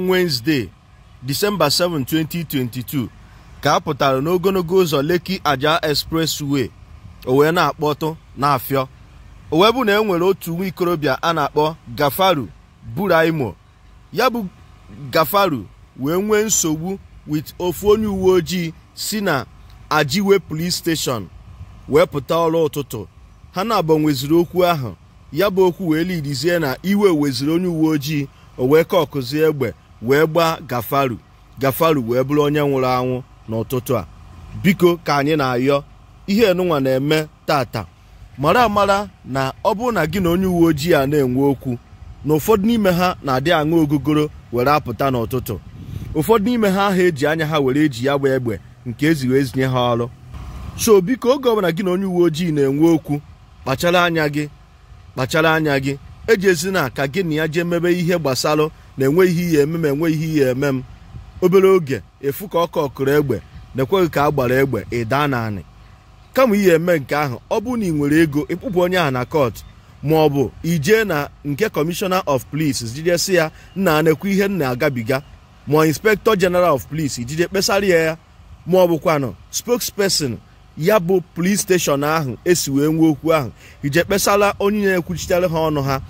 Wednesday December 7, 2022 ka a pụtara n'ogologo ụzọ Lekki Ajah Expressway o wee na-akpọtụ n'afịọ o wee bụ na e nwere otu nwa ikorobịa a na-akpọ Gafaru Buraimo ya bụ Gafaru wee nwee nsogbu with ofu onye uwe ojii si na Ajiwe Police Station wee pụta ọrụ ụtụtụ ha na-abọ okwu ahụ ya bụ okwu wee lidizie na iwe weziri onye uwe ojii o wee ka ọkụzie egbe wee gbaa gafaru gafaru wee bụrụ onye nwụrụ anwụ n'ụtụtụ a biko ka anyị na-ayọ ihe enunwa na-eme tata mara amara na ọ bụrụ na gị na onye uwe ojii a na-enwe okwu na ụfọdụ n'ime ha na-adị aṅụ ogogoro were apụta n'ụtụtụ ụfọdụ n'ime ha ahụ eji anya ha were eji ya gba egbe nke eziri ezinye ha ọrụ so biko oge ọbụla gị na onye uwe ojii na-enwe okwu kpachara anya gị kpachara anya gị ejezina ka gị na ya jee mebe ihe gbasara na enweghị ihe eme m enweghị ihe eme m obere oge efu ka ọ kọkụrụ egbe na-ekweghị ka a gbara egbe ịda na kama ihe eme nke ahụ ọ bụrụ na ị nwere ego ịkpụpụ onye ahụ na kọt ma ọ bụ ijee na nke kọmishọna of polis jidesi ya nna na ihe m na-agabiga ma inspektọ jeneral of polis ijide kpesara ya ya ma ọ bụkwanụ spokesperson ya bụ polis steshọn ahụ esi wee nwee okwu ahụ ije kpesara onye na-ekwuchitere ha ọnụ ha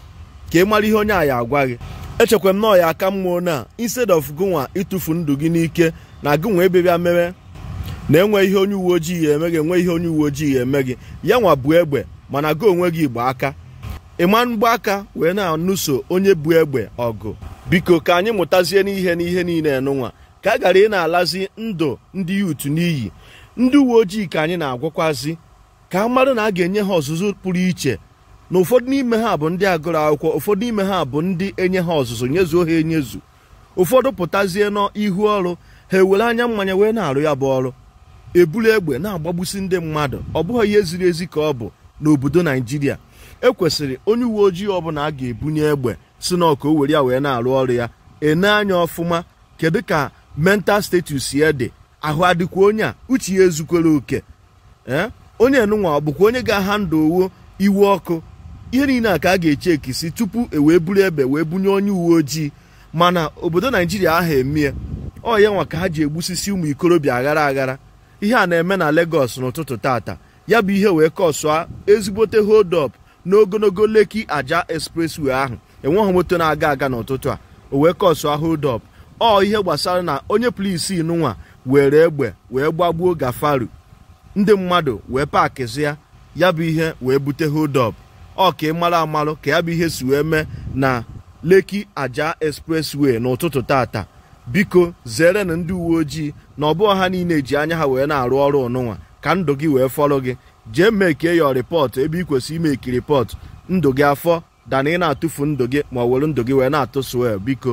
ka ị mara ihe onye a ya agwa gị echekwara m na ọya aka mmụọ na instead of gụnwa ịtụfu ndụ gị n'ike na gụnwa ebe bịa mere na enwe ihe onye uwe ojii ya eme gị enwe ihe onye uwe ojii ya eme gị ya nwa bụ egbe mana gị onwe gị igba aka ịma mgbaaka aka wee na-anụso onye bụ egbe ọgụ biko ka anyị mụtazie n'ihe n'ihe niile nụnwa ka a gara ị na-alazi ndụ ndị yuutu n'iyi ndị uwe ojii ka anyị na-agwakwazi ka a na a ga-enye ha ọzụzụ pụrụ iche na ụfọdụ n'ime ha bụ ndị agụrụ akwụkwọ ụfọdụ n'ime ha bụ ndị enye ha ọzụzụ nyezuo ha enyezu ụfọdụ pụtazie n'ihu ọrụ ha ewere anya mmanya wee na-arụ ya bụ ọrụ eburu egbe na-agbagbusi ndị mmadụ ọ bụghị ihe ziri ezi ka ọ bụ n'obodo naijiria ekwesịrị onye uwe ojii ọbụla a ga-ebunye egbe si na ọka o were ya wee na-arụ ọrụ ya ene anya ọfụma kedu ka mental status ya dị ahụ adịkwa onye a uche ya ezukwere oke onye nụnwa ọ bụkwa onye ga-aha ndụ owo iwe ọkụ ihe niile a ka a ga-eche ekisi tupu e wee buru ebe wee bunye onye uwe ojii mana obodo naijiria ahụ emie ọ ya nwa ka ha ji egbusisi ụmụ ikorobịa aghara aghara ihe a na-eme na Lagos n'ụtụtụ tata ya bụ ihe wee kọsụa ezigbote hold up n'ogologo Lekki aja expressway ahụ enweghị moto na-aga aga n'ụtụtụ a o wee kọsụa hold up ọ ihe gbasara na onye polisi nụnwa were egbe wee gbagbuo gafaru ndị mmadụ wee paakịzịa ya bụ ihe wee bute hold up ọ ka ị mara amalụ ka ya bụ ihe si wee mee na Lekki aja Expressway n'ụtụtụ tata biko zere na ndị uwe ojii na ọ bụghị ha niile ji anya ha wee na-arụ ọrụ ụnụnwa ka ndụ gị wee fọrọ gị jee mekie ya rịpọtụ ebe ị kwesịrị imeki rịpọtụ ndụ gị afọ dana ị na-atụfu ndụ gị ma ọ were ndụ gị wee na atụ ya biko